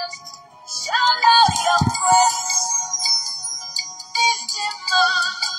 Shout out your praise. This is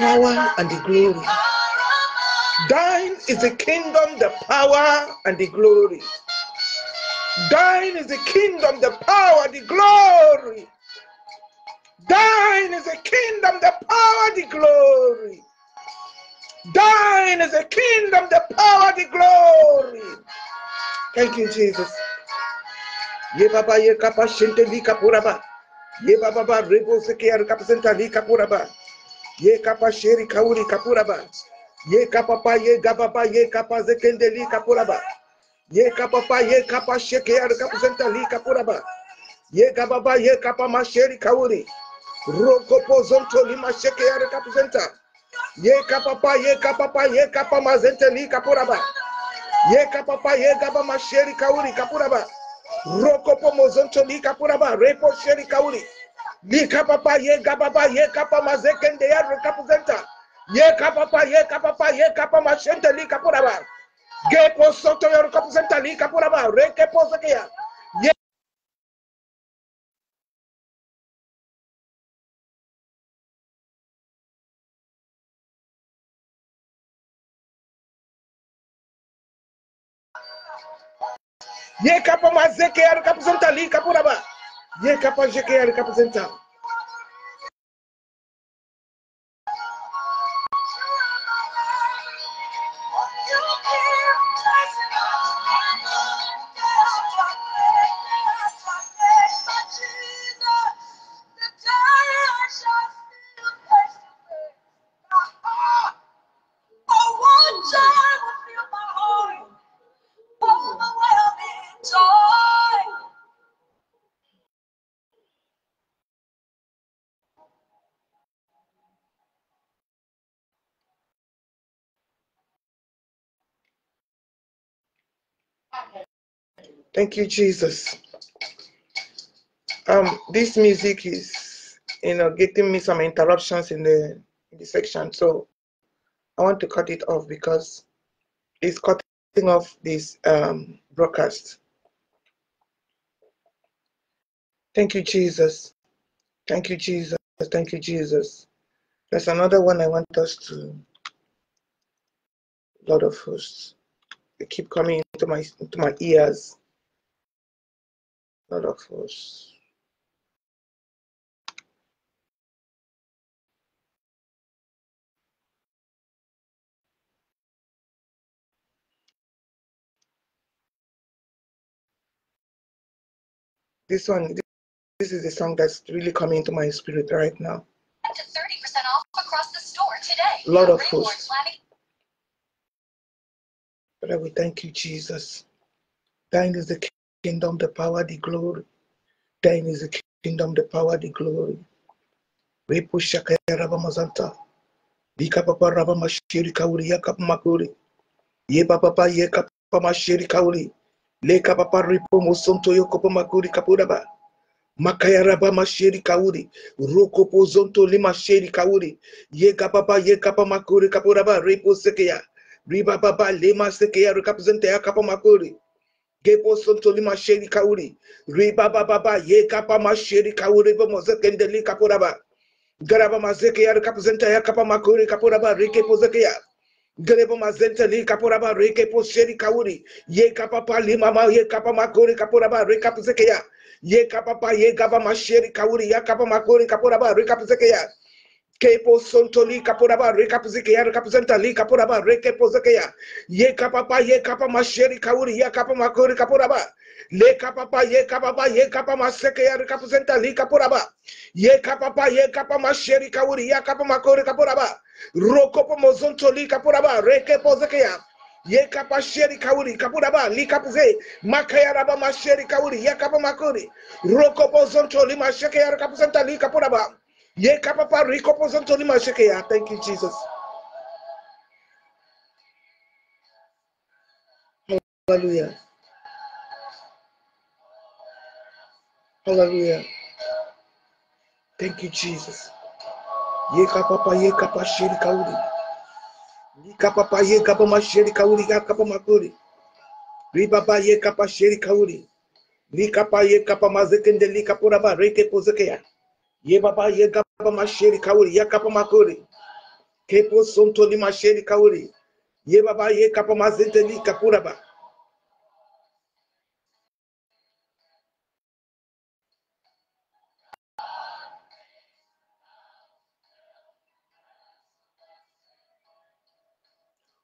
power and the glory. Thine is the kingdom, the power, and the glory. Thine is the kingdom, the power, the glory. Thine is the kingdom, the power, the glory. Thine is the kingdom, the power, the glory. Thank you, Jesus. Ye baba ye kapashente di kapuraba. Ye baba rebo ar sekiar kapasenta di kapuraba. Ye kapa sheri kauri kapuraba. Ye kapa pa ye gababa ye kapa zekendeli kapuraba. Ye kapa pa ye kapa sheke ar kapuzentali kapuraba. Ye gababa ye kapa masheri kauri. Roko pozonto lima sheke ar kapuzenta. Ye kapa pa ye kapa pa ye kapa mazenteli kapuraba. Ye kapa pa ye gaba masheri kauri kapuraba. Roko pomozonto li kapuraba. Repo sheri kauri. Li kapapa ye gababa ye kapa mazekende ya rekapuzenta. Ye kapapa ye kapapa ye kapa mashente li kapuraba. Ge po soto ya rekapuzenta li kapuraba. Reke po zekeya. Ye ye kapa mazeke ya rekapuzenta li kapuraba. e é capaz de criar e representar. Thank you, Jesus. Um, this music is, you know, getting me some interruptions in the in the section, so I want to cut it off because it's cutting off this um, broadcast. Thank you, Jesus. Thank you, Jesus. Thank you, Jesus. There's another one I want us to. lot of hosts, they keep coming into my into my ears lot of us. This one, this is the song that's really coming to my spirit right now. Up to 30% off across the store today. Lord of hosts. But I will thank you, Jesus. Thine is the kingdom, the power, the glory. Thine is the kingdom, the power, the glory. We Repo shakaya rabamazanta. Bika papa rabamashiri kauri yakap makuri. Ye papa ye kapamashiri kauri. Leka papa ripo mosonto yokopo makuri kapuraba. Makayaraba masheri kauri, roko pozonto lima sheri kauri, ye papa ye kapa makuri kapuraba repo sekeya, riba baba lema sekeya represente ya kapa makuri. Gebo sontoli masheri kauri. Riba baba ye kapa masheri kauri bo mozekendeli kapuraba. Garaba mazeke ya kapuzenta ya kapa makuri kapuraba rike pozeke ya. Grebo mazenta li kapuraba rike posheri kauri. Ye kapa pali mama ye kapa makuri kapuraba rika pozeke ya. Ye kapa pa ye gaba masheri kauri ya kapa makuri kapuraba rika pozeke ya. Kepo sontoli kapuraba rekapzikeya rekapzenta li kapuraba rekepozekeya. Ye kapapa ye kapa masheri kauri ye kapa makuri kapuraba. Le kapapa ye kapapa ye kapa masekeya rekapzenta li kapuraba. Ye kapapa ye kapa masheri kauri ye kapa makuri kapuraba. Rokopo mozontoli kapuraba rekepozekeya. Ye kapa sheri kauri kapuraba li kapuze makaya raba masheri kauri ye kapa makuri. Rokopo zontoli mashekeya kapuzenta li kapuraba. Thank you, Jesus. Hallelujah. Hallelujah. Thank you, Jesus. Yeka papa yeka pa sheri kauri. Yeka papa yeka pa masheri kauri yeka pa makuri. Riba pa yeka pa sheri kauri. Lika pa yeka pa mazekende lika pura ba reke pozekeya. Ye baba ye gaba masheri kawuri ya kapa makuri. Kepo sonto ni masheri kawuri. Ye baba ye kapa mazete ni kapuraba.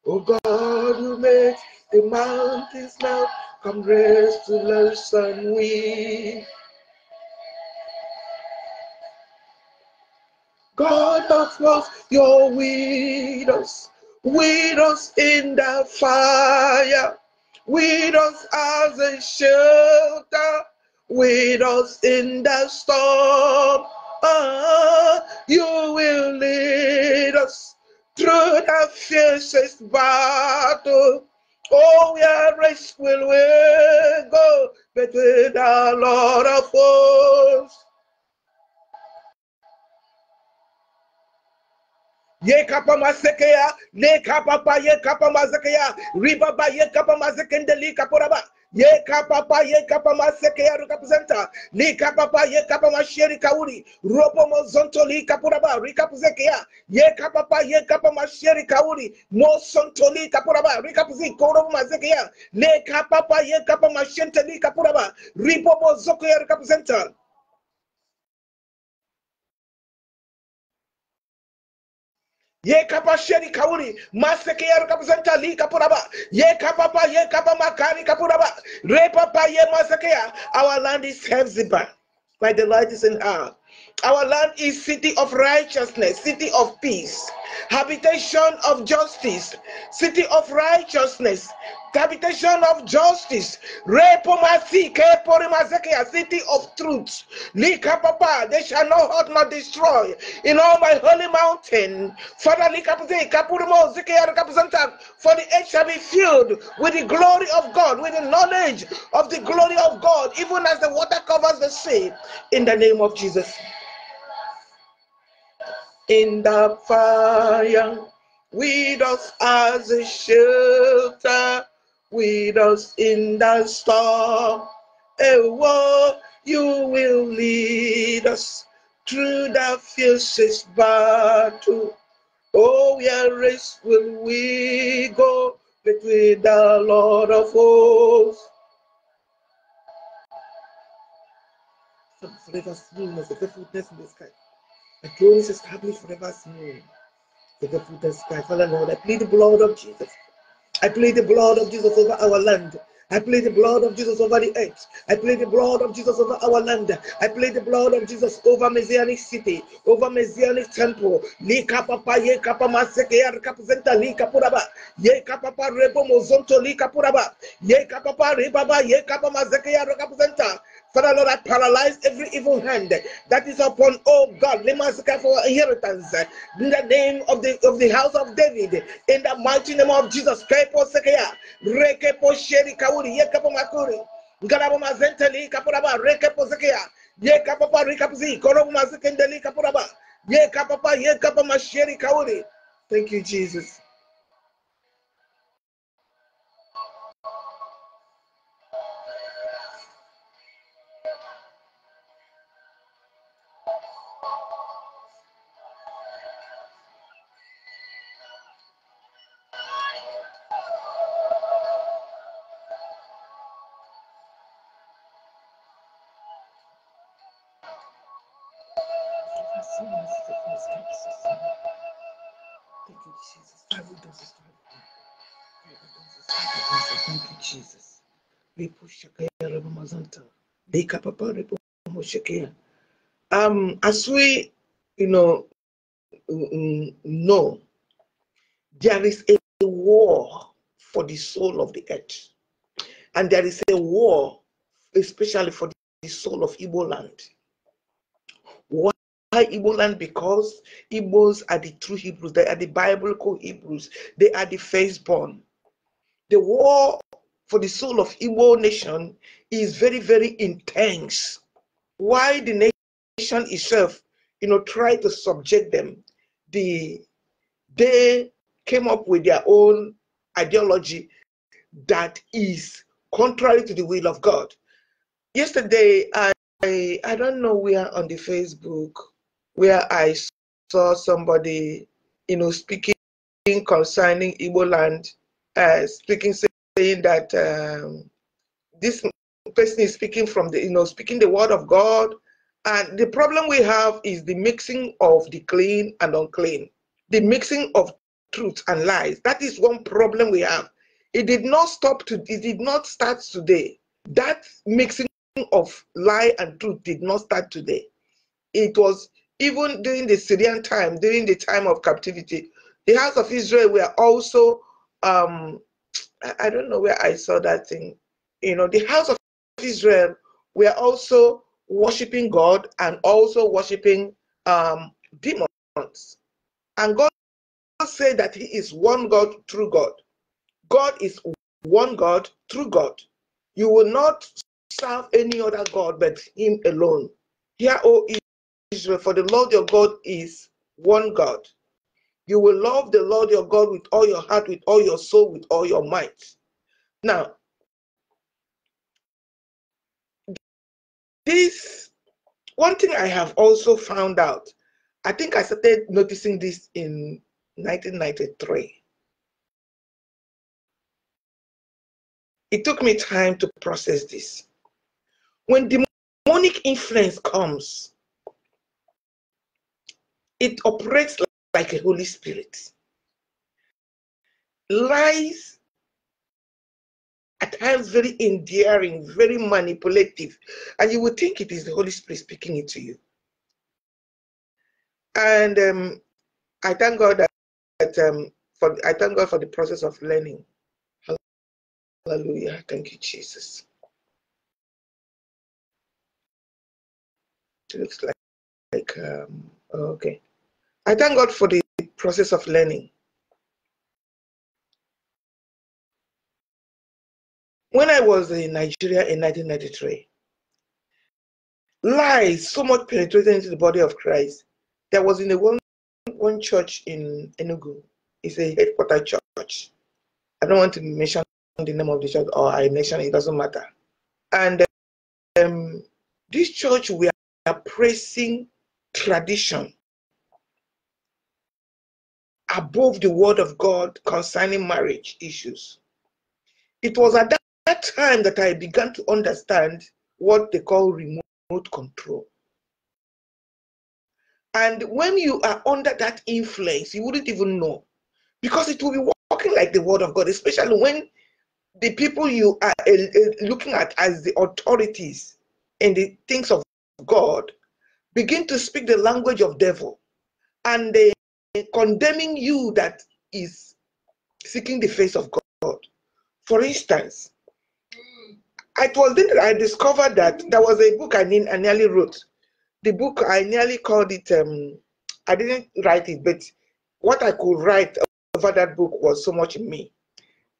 Oh God, you make the mountains now come rest to the sun wind. God of love, you're with us, with us in the fire, with us as a shelter, with us in the storm. Ah, you will lead us through the fiercest battle. Oh, we are will we go? But with the Lord of hosts. yekapa masekeya lekapa pa yekapa masekeya ribaba yekapa masekendeli kaporaba ye kapa kapapa ye kapa maseke ya ruka presenta rikapuzenta kapa pa ye kapa masheri kauri ropo mozonto li ba kapuraba rikapuzeke ya ye kapa pa ye kapa masheri kauri mosonto li ba kapuraba rikapuzi koro maseke ya ne kapa pa ye kapa mashente li ba ripo mozoko ya ruka presenta ye kapa sheri kauri maseke yaro kapuzanta li kapuraba ye kapa pa ye kapa makari kapuraba re papa ye maseke ya our land is by my delight is in our our land is city of righteousness, city of peace, habitation of justice, city of righteousness, habitation of justice, city of truth. They shall not hurt nor destroy in all my holy mountain. Father, for the earth shall be filled with the glory of God, with the knowledge of the glory of God, even as the water covers the sea. In the name of Jesus in the fire. With us as a shelter, with us in the storm. A war you will lead us through the fiercest battle. Oh, where race will we go but with the Lord of hosts? Let us know a faithfulness in the sky. The throne is established forever as new. the foot and sky, Father Lord, I plead the blood of Jesus. I plead the blood of Jesus over our land. I plead the blood of Jesus over the earth. I plead the blood of Jesus over our land. I plead the blood of Jesus over Messianic city, over Messianic temple. Ni kapapa ye kapama seke yar kapzenta li kapuraba. Ye kapapa rebo mozonto li kapuraba. Ye kapapa ribaba ye kapama seke yar kapzenta. Father Lord, I paralyze every evil hand that is upon, oh God, Lemasika for inheritance in the name of the of the house of David, in the mighty name of Jesus. Rikapzi, Korobu Mazikendeli Kapuraba, Masheri Thank you, Jesus. Um, as we, you know, know, mm, there is a war for the soul of the earth, and there is a war, especially for the soul of Igbo land. Why Igbo land? Because Igbos are the true Hebrews. They are the Bible called Hebrews. They are the firstborn. The war for the soul of Igbo nation is very, very intense. Why the nation itself, you know, tried to subject them. The they came up with their own ideology that is contrary to the will of God. Yesterday, I I, I don't know where on the Facebook where I saw somebody, you know, speaking concerning Igbo land, uh, speaking saying that um, this person is speaking from the, you know, speaking the word of God. And the problem we have is the mixing of the clean and unclean, the mixing of truth and lies. That is one problem we have. It did not stop to, it did not start today. That mixing of lie and truth did not start today. It was even during the Syrian time, during the time of captivity, the house of Israel were also, um, I don't know where I saw that thing. You know, the house of Israel we are also worshiping God and also worshiping um, demons. And God said that He is one God, true God. God is one God, true God. You will not serve any other God but Him alone. Hear, O Israel, for the Lord your God is one God. You will love the Lord your God with all your heart, with all your soul, with all your might. Now, this one thing I have also found out, I think I started noticing this in 1993. It took me time to process this. When demonic influence comes, it operates like a Holy Spirit. Lies at times very endearing, very manipulative, and you would think it is the Holy Spirit speaking it to you. And um, I thank God that, that um, for I thank God for the process of learning. Hallelujah! Thank you, Jesus. It looks like like um, okay. I thank God for the process of learning When I was in Nigeria in 1993, lies so much penetrated into the body of Christ. There was in the one, one church in Enugu, it's a headquarter church. I don't want to mention the name of the church or I mention it, doesn't matter. And um, this church, we are praising tradition above the word of God concerning marriage issues. It was at that that time that I began to understand what they call remote control. And when you are under that influence, you wouldn't even know because it will be working like the word of God, especially when the people you are eh, eh, looking at as the authorities in the things of God begin to speak the language of devil and they condemning you that is seeking the face of God. For instance, it was then I discovered that there was a book I, I nearly wrote. The book I nearly called it. Um, I didn't write it, but what I could write over that book was so much me.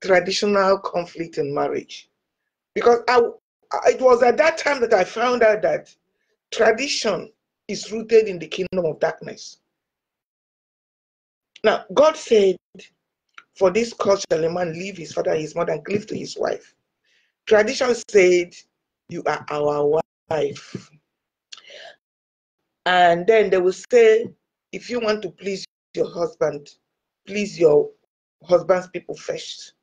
Traditional conflict in marriage, because I it was at that time that I found out that tradition is rooted in the kingdom of darkness. Now, God said, For this cause shall a man leave his father and his mother and cleave to his wife, Tradition said, You are our wife. And then they will say, If you want to please your husband, please your husband's people first.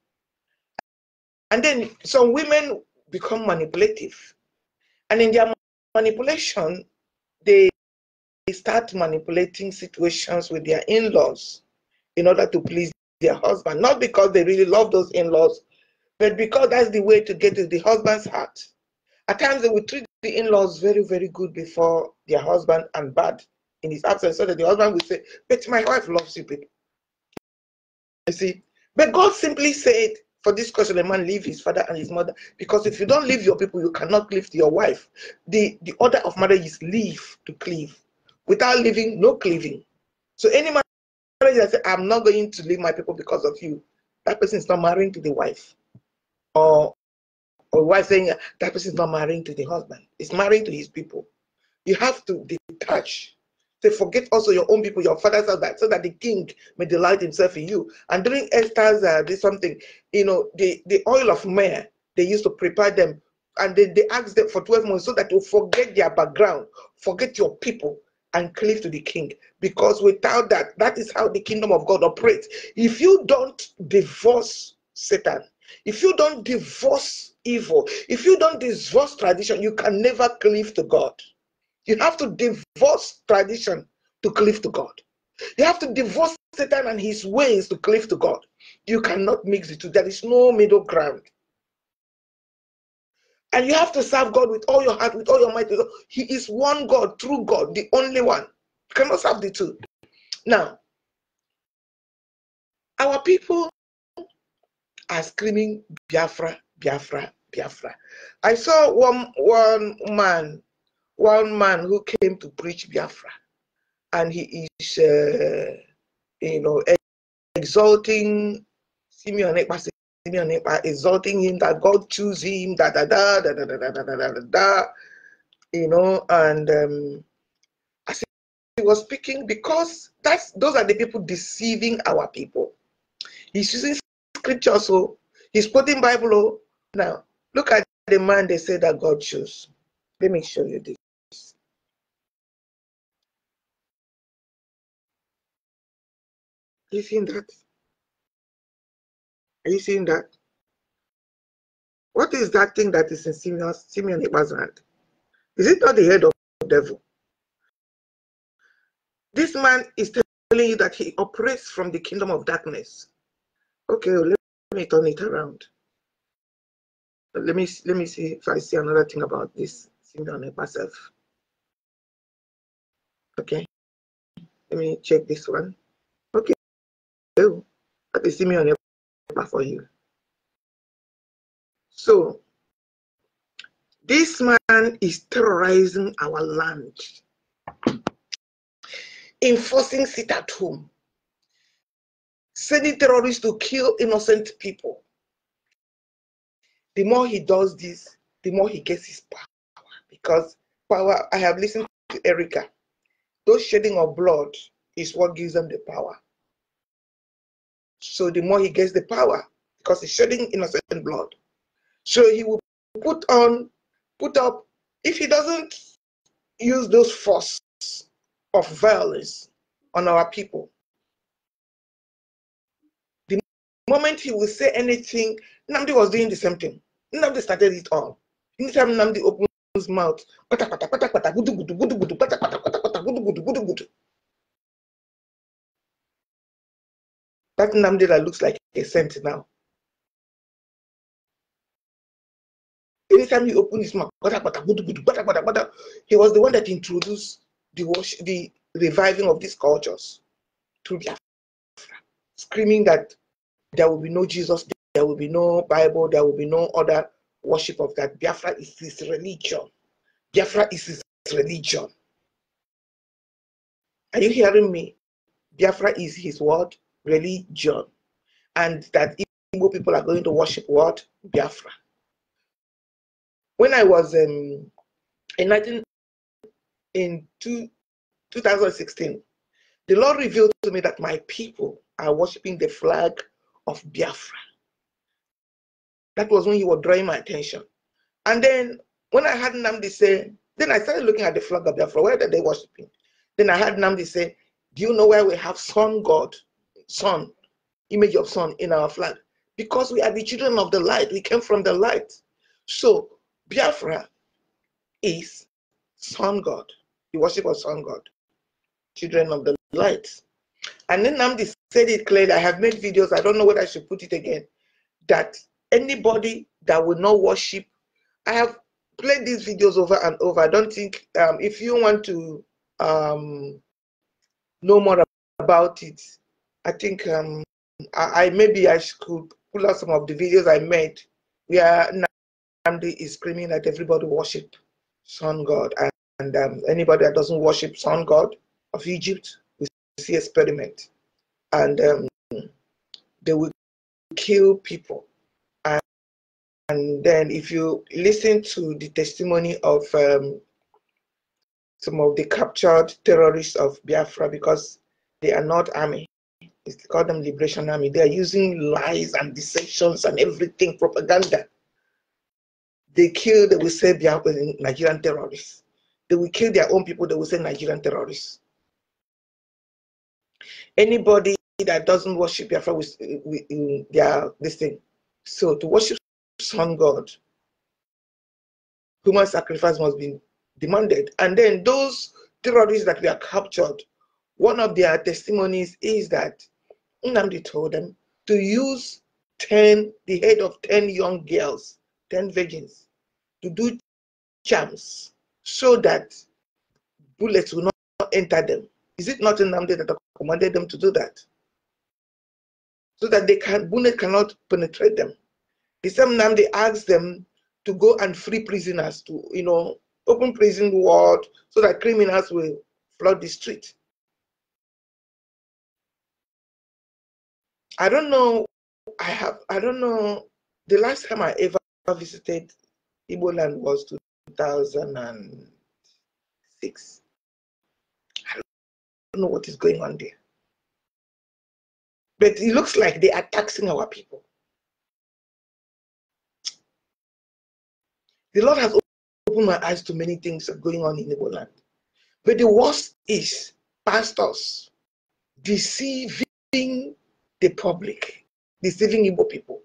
And then some women become manipulative. And in their manipulation, they start manipulating situations with their in laws in order to please their husband. Not because they really love those in laws, but because that's the way to get the husband's heart. At times they will treat the in-laws very, very good before their husband and bad in his absence, so that the husband will say, But my wife loves you, people. You see? But God simply said, for this question, a man leave his father and his mother. Because if you don't leave your people, you cannot leave your wife. The the order of marriage is leave to cleave. Without leaving, no cleaving. So any man that says, I'm not going to leave my people because of you, that person is not marrying to the wife or or wife saying that person is not marrying to the husband, is marrying to his people. You have to detach. They forget also your own people, your father's house, so that the king may delight himself in you. And during Esther's uh, this something, you know, the, the oil of myrrh, they used to prepare them and then they asked them for 12 months so that you forget their background, forget your people, and cleave to the king. Because without that, that is how the kingdom of God operates. If you don't divorce Satan, if you don't divorce evil, if you don't divorce tradition, you can never cleave to God. You have to divorce tradition to cleave to God. You have to divorce Satan and his ways to cleave to God. You cannot mix the two. There is no middle ground. And you have to serve God with all your heart, with all your might. He is one God, true God, the only one. You cannot serve the two. Now, our people are screaming Biafra, Biafra, Biafra. I saw one one man, one man who came to preach Biafra, and he is, uh, you know, exalting Simeon Ekpa, Simeon Ekpa, exalting him that God chose him, da da da da da da da da da da da, you know, and um, as he was speaking, because that's those are the people deceiving our people. He's using scripture, so oh. he's quoting Bible. Oh. Now, look at the man they say that God chose. Let me show you this. Are you seeing that? Are you seeing that? What is that thing that is in Simeon, Simeon Eba's hand? Is it not the head of the devil? This man is telling you that he operates from the kingdom of darkness okay, let me turn it around. Let me let me see if I see another thing about this it myself. Okay, let me check this one. Okay, so that is Simeon for you. So this man is terrorizing our land, enforcing sit at home, sending terrorists to kill innocent people. The more he does this, the more he gets his power. Because power, I have listened to Erica, those shedding of blood is what gives them the power. So the more he gets the power, because he's shedding innocent blood. So he will put on, put up, if he doesn't use those force of violence on our people, moment he will say anything, Namdi was doing the same thing. Namdi started it all. Anytime Namdi opened his mouth, pata pata pata pata gudu gudu gudu gudu pata pata pata pata gudu gudu gudu gudu. That Namdi that looks like a saint now. Anytime he opened his mouth, pata gudu gudu pata pata pata, he was the one that introduced the the reviving of these cultures through screaming that there will be no Jesus. There will be no Bible. There will be no other worship of that. Biafra is his religion. Biafra is his religion. Are you hearing me? Biafra is his word, religion. And that Igbo people are going to worship what? Biafra. When I was um, in 19, in two, 2016, the Lord revealed to me that my people are worshiping the flag of Biafra. That was when you were drawing my attention. And then when I had Namdi say, then I started looking at the flag of Biafra. Where are they worshiping? Then I had Namdi say, Do you know where we have sun god, sun, image of sun in our flag? Because we are the children of the light. We came from the light. So Biafra is sun god, the worship of sun god, children of the light. And then Namdi said it clearly. I have made videos. I don't know whether I should put it again. That anybody that will not worship, I have played these videos over and over. I don't think um, if you want to um, know more about it, I think um, I, I, maybe I could pull out some of the videos I made where Namdi is screaming that everybody worship Sun God and, and um, anybody that doesn't worship Sun God of Egypt See experiment and um, they will kill people and, and, then if you listen to the testimony of um, some of the captured terrorists of biafra because they are not army it's called them liberation army they are using lies and deceptions and everything propaganda they kill they will say biafra nigerian terrorists they will kill their own people they will say nigerian terrorists Anybody that doesn't worship Biafra with, uh, with their this thing. So to worship sun god, human sacrifice must be demanded. And then those terrorists that are captured, one of their testimonies is that Nnamdi told them to use 10, the head of 10 young girls, 10 virgins, to do charms so that bullets will not enter them. Is it not Nnamdi that commanded them to do that. So that they can Bune cannot penetrate them. The same time they asked them to go and free prisoners to, you know, open prison ward so that criminals will flood the street. I don't know. I have. I don't know. The last time I ever visited Igbo land was 2006 don't know what is going on there. But it looks like they are taxing our people. The Lord has opened my eyes to many things going on in the land. But the worst is pastors deceiving the public, deceiving Igbo people.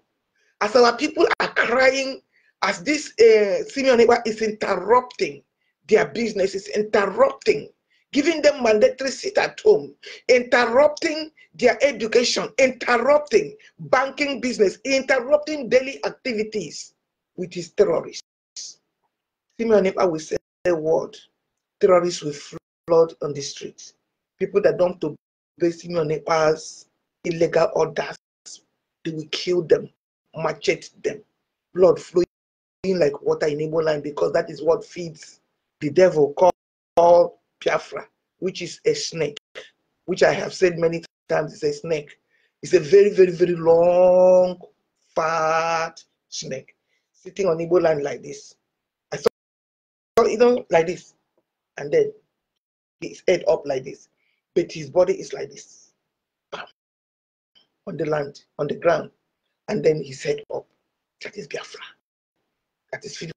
As our people are crying, as this uh, Simeon is interrupting their businesses, interrupting giving them mandatory sit at home, interrupting their education, interrupting banking business, interrupting daily activities with is terrorists. Simeon will say a word, terrorists will flood on the streets. People that don't obey Simeon Epa's illegal orders, they will kill them, machete them, blood flowing like water in Igbo line because that is what feeds the devil called Piafra, which is a snake, which I have said many times is a snake. It's a very, very, very long, fat snake sitting on Igbo land like this. I saw, you know, like this. And then his head up like this, but his body is like this. Bam. On the land, on the ground. And then his head up. That is Biafra. That is feeding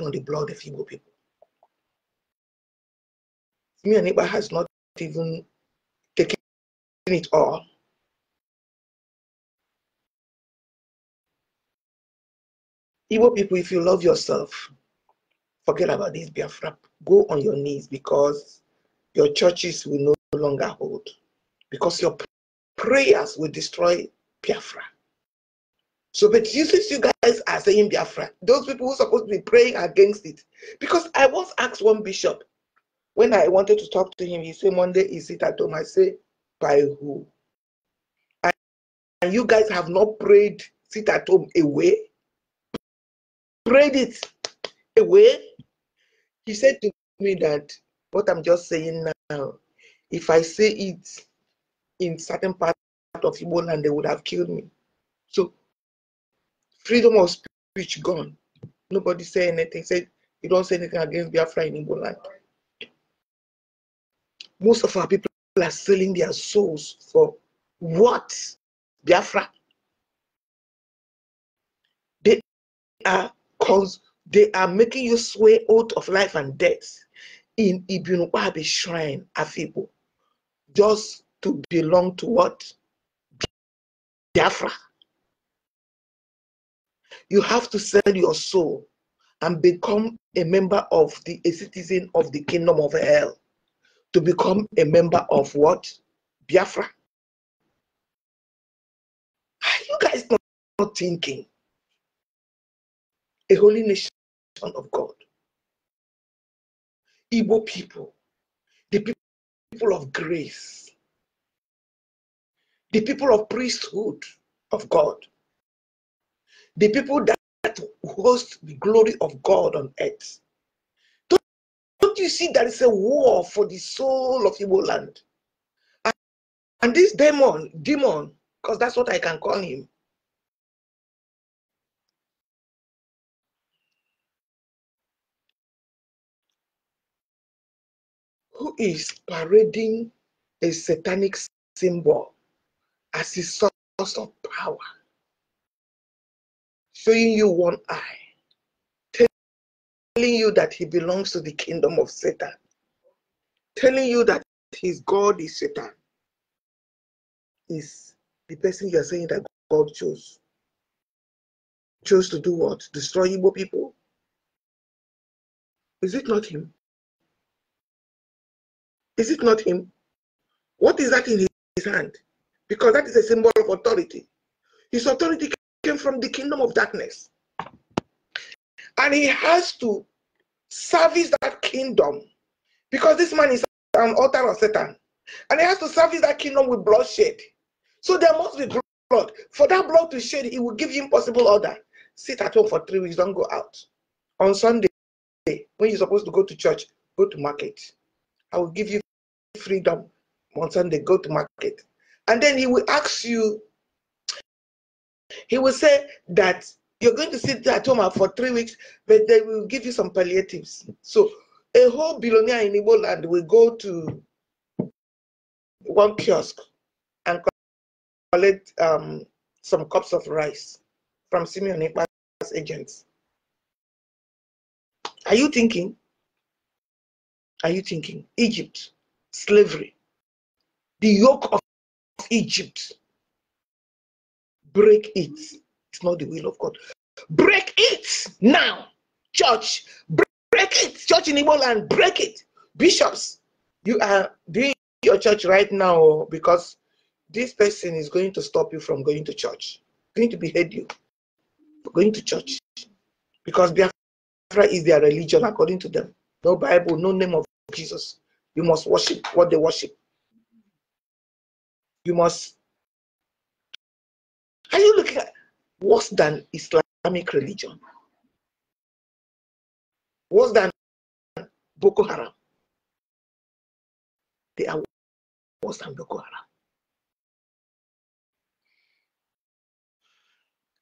on the blood of Igbo people. Me and neighbor has not even taken it all. Igbo people, if you love yourself, forget about this Biafra. Go on your knees because your churches will no longer hold. Because your prayers will destroy Biafra. So, but you, you guys are saying Biafra, those people who are supposed to be praying against it, because I once asked one bishop, when I wanted to talk to him, he said, Monday is it at home? I say, by who? And, and you guys have not prayed sit at home away. Prayed it away. He said to me that what I'm just saying now, if I say it in certain part of Igbo land, they would have killed me. So freedom of speech gone. Nobody say anything. Said you don't say anything against Biafra in Igbo land most of our people are selling their souls for what? Biafra. They are cons- they are making you swear oath of life and death in Ibn Wahabi shrine, Afibo, just to belong to what? Biafra. You have to sell your soul and become a member of the a citizen of the kingdom of hell to become a member of what? Biafra. Are you guys not, not thinking? A holy nation of God. Igbo people, the people of grace, the people of priesthood of God, the people that host the glory of God on earth. Don't you see there is a war for the soul of Igbo land? And, and this demon, demon, because that's what I can call him. Who is parading a satanic symbol as his source of power, showing you one eye telling you that he belongs to the kingdom of Satan, telling you that his God is Satan, is the person you are saying that God chose. Chose to do what? Destroy Igbo people? Is it not him? Is it not him? What is that in his hand? Because that is a symbol of authority. His authority came from the kingdom of darkness. And he has to service that kingdom because this man is an author of Satan. And he has to service that kingdom with bloodshed. So there must be blood. For that blood to shed, he will give you impossible order. Sit at home for three weeks, don't go out. On Sunday, when you're supposed to go to church, go to market. I will give you freedom on Sunday, go to market. And then he will ask you, he will say that you're going to sit at home for three weeks, but they will give you some palliatives. So a whole billionaire in Igbo land will go to one kiosk and collect um, some cups of rice from Simeon Ekpa's agents. Are you thinking? Are you thinking? Egypt, slavery, the yoke of Egypt, break it. It's not the will of God. Break it now, church. Break it, church in Igbo and Break it, bishops. You are doing your church right now oh, because this person is going to stop you from going to church. Going to behead you going to church because Biafra is their religion according to them. No Bible, no name of Jesus. You must worship what they worship. You must. Are you looking at? worse than Islamic religion, worse than Boko Haram. They are worse than Boko Haram.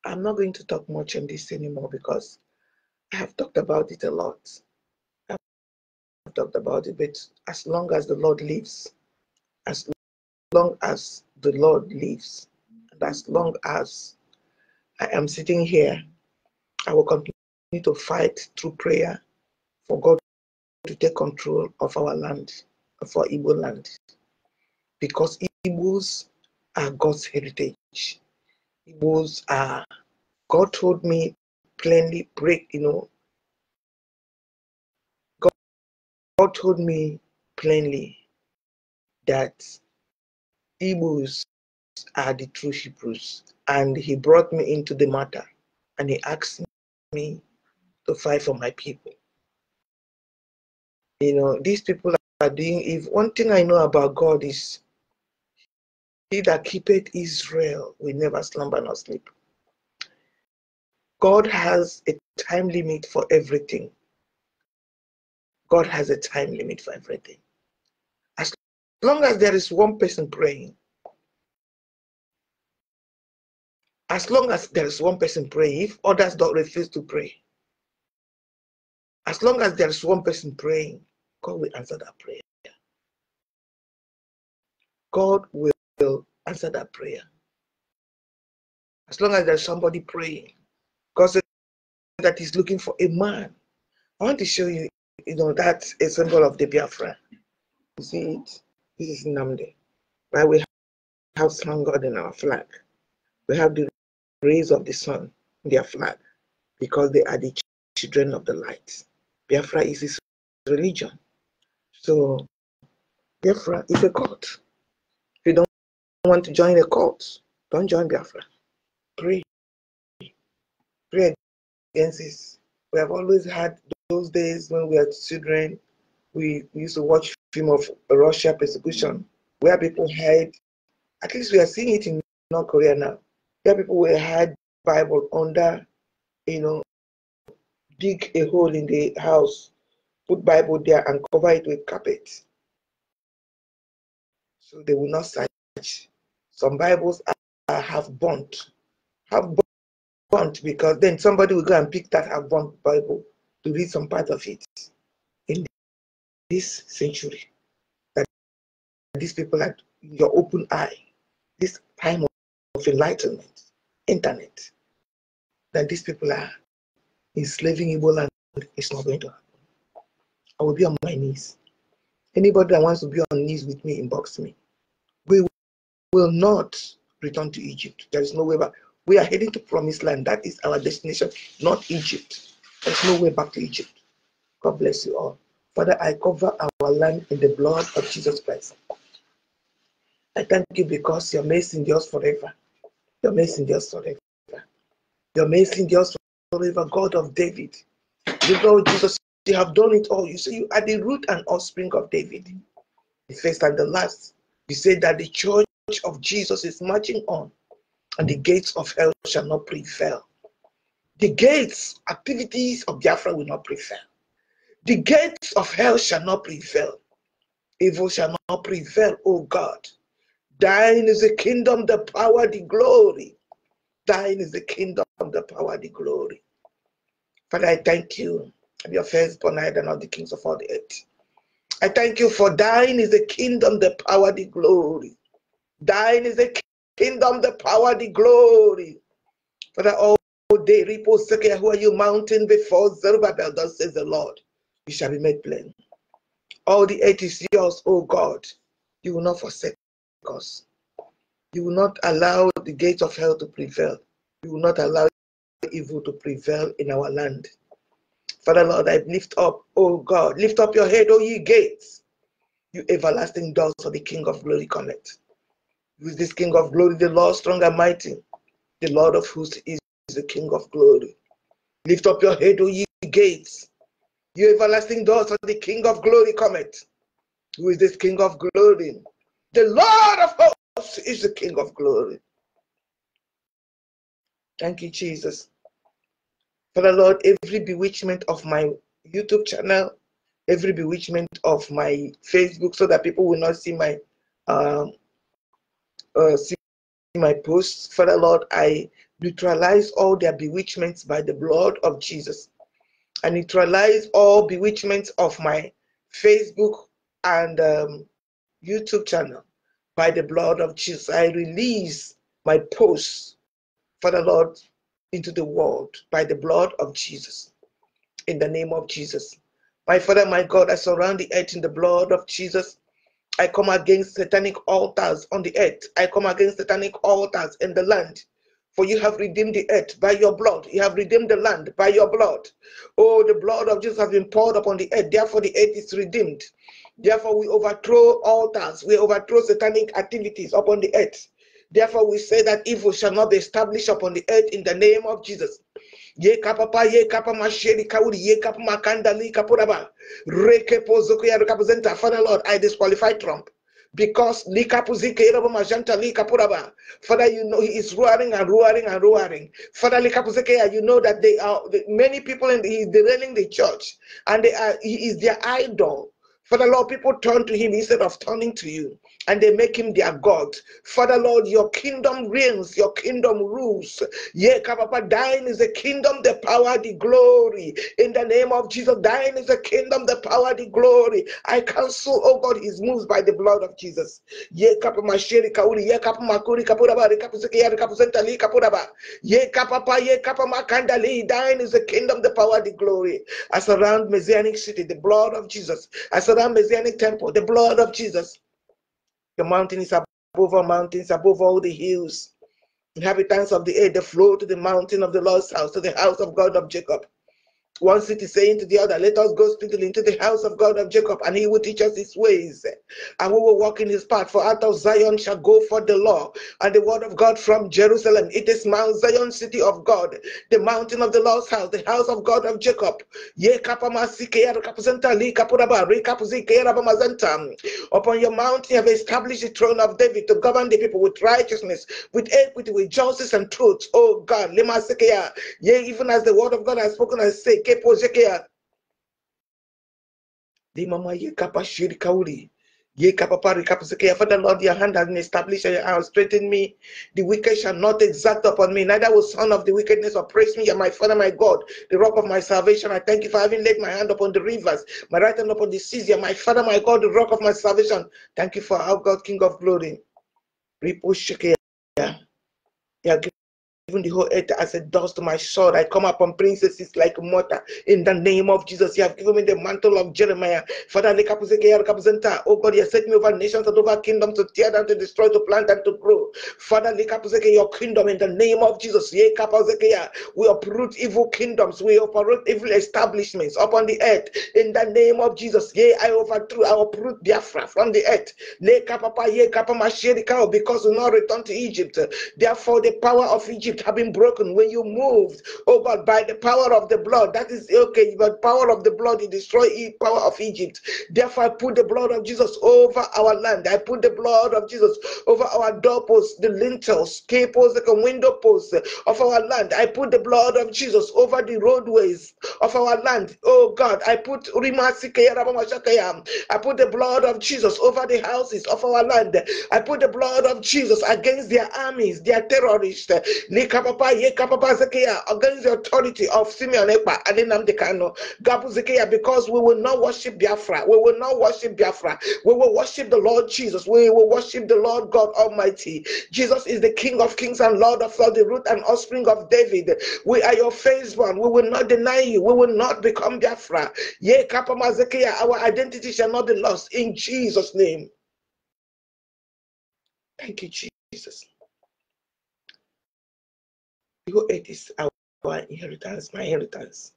I'm not going to talk much on this anymore because I have talked about it a lot. I've talked about it, but as long as the Lord lives, as long as the Lord lives, and as long as I am sitting here. I will continue to fight through prayer for God to take control of our land, for Igbo land. Because Igbos are God's heritage. Igbos are, God told me plainly, break, you know, God, God told me plainly that Igbos are the true Hebrews. And he brought me into the matter and he asked me to fight for my people. You know, these people are doing, if one thing I know about God is he that keepeth Israel will never slumber nor sleep. God has a time limit for everything. God has a time limit for everything. As long as there is one person praying, As long as there is one person praying, if others don't refuse to pray, as long as there is one person praying, God will answer that prayer. God will answer that prayer. As long as there's somebody praying, God says that He's looking for a man. I want to show you, you know, that's a symbol of the Biafra. You see it? This is Namde. Right? We have strong God in our flag. We have the rays of the sun, their flag, because they are the children of the light. Biafra is his religion. So Biafra is a cult. If you don't want to join a cult, don't join Biafra. Pray. Pray against this. We have always had those days when we were children, we used to watch film of Russia persecution, where people hide. At least we are seeing it in North Korea now where people will hide Bible under, you know, dig a hole in the house, put Bible there and cover it with carpet. So they will not search. Some Bibles are, have burnt, have burnt because then somebody will go and pick that have burnt Bible to read some part of it in this century. That these people are your open eye, this time of of enlightenment, internet, that these people are enslaving Igbo land is not going to happen. I will be on my knees. Anybody that wants to be on knees with me, inbox me. We will not return to Egypt. There is no way back. We are heading to promised land. That is our destination, not Egypt. There's no way back to Egypt. God bless you all. Father, I cover our land in the blood of Jesus Christ. I thank you because you're amazing yours forever. Your messengers forever. Your messengers forever, God of David. You Lord Jesus, you have done it all. You say you are the root and offspring of David, the first and the last. You say that the church of Jesus is marching on, and the gates of hell shall not prevail. The gates, activities of Biafra will not prevail. The gates of hell shall not prevail. Evil shall not prevail, O God. Thine is the kingdom, the power, the glory. Thine is the kingdom, the power, the glory. Father, I thank you. I'm your firstborn, I and all the kings of all the earth. I thank you for thine is the kingdom, the power, the glory. Thine is the kingdom, the power, the glory. Father, all day, repose, who are you mountain before Zerubbabel, thus says the Lord. You shall be made plain. All the earth is yours, O God. You will not forsake us. You will not allow the gates of hell to prevail. You will not allow evil to prevail in our land. Father Lord, I lift up, oh God, lift up your head, O ye gates, you everlasting doors for the King of glory connect. With this King of glory, the Lord strong and mighty, the Lord of hosts is the King of glory. Lift up your head, O ye gates, you everlasting doors for the King of glory cometh. Who is this King of glory? The Lord of hosts is the King of glory. Thank you, Jesus. Father Lord, every bewitchment of my YouTube channel, every bewitchment of my Facebook, so that people will not see my uh, uh, see my posts. Father Lord, I neutralize all their bewitchments by the blood of Jesus. I neutralize all bewitchments of my Facebook and um, YouTube channel. By the blood of Jesus, I release my posts for the Lord into the world by the blood of Jesus. In the name of Jesus. My Father, my God, I surround the earth in the blood of Jesus. I come against satanic altars on the earth. I come against satanic altars in the land. For you have redeemed the earth by your blood. You have redeemed the land by your blood. Oh, the blood of Jesus has been poured upon the earth. Therefore, the earth is redeemed. Therefore, we overthrow altars, we overthrow satanic activities upon the earth. Therefore, we say that evil shall not be established upon the earth in the name of Jesus. ye kapapa ye kapa masheri kauri ye kapa makandali kapuraba Rekepo zokuya ya representa father lord i disqualify trump because likapuzike robo majanta likapuraba father you know he is roaring and roaring and roaring father ya, you know that they are many people and he is derailing the church and they are he is their idol Father Lord, people turn to him instead of turning to you and they make him their God. Father Lord, your kingdom reigns, your kingdom rules. Yeah, Papa, thine is the kingdom, the power, the glory. In the name of Jesus, thine is the kingdom, the power, the glory. I cancel, oh God, his moves by the blood of Jesus. Yeah, Papa, shiri Kauri, yeah, Papa, Makuri, Kapuraba, Kapusiki, Kapusentali, Kapuraba. Yeah, Papa, yeah, kanda le, thine is the kingdom, the power, the glory. I surround Messianic city, the blood of Jesus. I surround Messianic temple, the blood of Jesus. The mountains above all mountains, above all the hills. Inhabitants of the earth, they flow to the mountain of the Lord's house, to the house of God of Jacob. One city saying to the other, Let us go speedily into the house of God of Jacob, and he will teach us his ways, and we will walk in his path. For out of Zion shall go forth the law and the word of God from Jerusalem. It is Mount Zion, city of God, the mountain of the Lord's house, the house of God of Jacob. Upon your mountain you have established the throne of David to govern the people with righteousness, with equity, with justice and truth. Oh God, even as the word of God has spoken, I say, yekepozekeya Di mama ye kapa shiri kauli. Ye kapa pari kapa sekeya. Father Lord, your hand has established and your hand has strengthened me. The wicked shall not exact upon me, neither will son of the wickedness oppress me. And my father, my God, the rock of my salvation. I thank you for having laid my hand upon the rivers, my right hand upon the seas. you my father, my God, the rock of my salvation. Thank you for our God, King of glory. Yeah. Yeah even the whole earth as a dust to my sword. I come upon princesses like mortar. In the name of Jesus, you have given me the mantle of Jeremiah. Father, oh God, you have set me over nations and over kingdoms to tear down, to destroy, to plant, and to grow. Father, your kingdom in the name of Jesus. We uproot evil kingdoms. We uproot evil establishments upon the earth. In the name of Jesus, yea, I overthrew, I uproot Biafra from the earth. Oh, because we not return to Egypt. Therefore, the power of Egypt Egypt have been broken when you moved, oh God, by the power of the blood. That is okay, but power of the blood, you destroy the power of Egypt. Therefore, I put the blood of Jesus over our land. I put the blood of Jesus over our doorposts, the lintels, capos, the window posts of our land. I put the blood of Jesus over the roadways of our land. Oh God, I put I put the blood of Jesus over the houses of our land. I put the blood of Jesus against their armies, their terrorists. Yekapapa, Yekapapa Zekiah, against the authority of Simeon Ekpa, Adinamdekano, Gabu Zekiah, because we will not worship Biafra. We will not worship Biafra. We will worship the Lord Jesus. We will worship the Lord God Almighty. Jesus is the King of kings and Lord of all the root and offspring of David. We are your firstborn. We will not deny you. We will not become Biafra. Yekapapa Zekiah, our identity shall not be lost in Jesus' name. Thank you, Jesus. Eagle eight is our inheritance, my inheritance.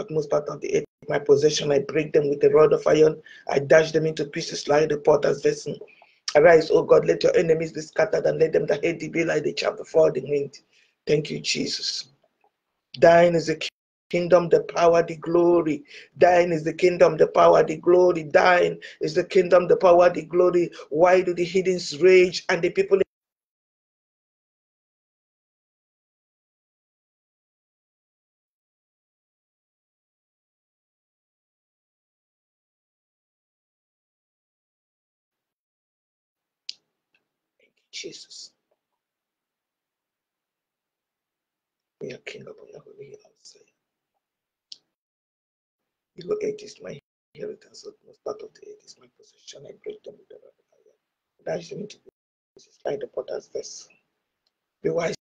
Utmost part of the eight, my possession, I break them with the rod of iron, I dash them into pieces like the potter's vessel. Arise, O God, let your enemies be scattered, and let them that hate thee be like the chaff before the wind. Thank you, Jesus. Thine is the kingdom, the power, the glory. Thine is the kingdom, the power, the glory. Thine is the kingdom, the power, the glory. Why do the heathens rage and the people Jesus. We are king upon your holy hill outside. Below is my inheritance, most part of the earth is my possession. I break them with the rod of iron. to into pieces like the potter's vessel. Be wise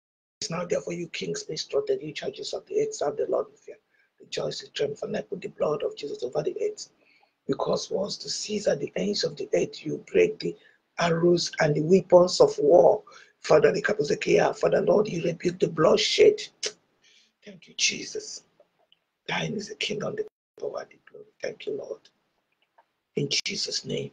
now, therefore, you kings, be instructed, you judges of the earth, serve the Lord with fear. Rejoice and triumph put the blood of Jesus over the earth. Because once to Caesar the ends of the earth, you break the arrows, and the weapons of war. Father, the Father, Lord, you rebuke the bloodshed. Thank you, Jesus. Thine is the kingdom, the power, the glory. Thank you, Lord. In Jesus' name.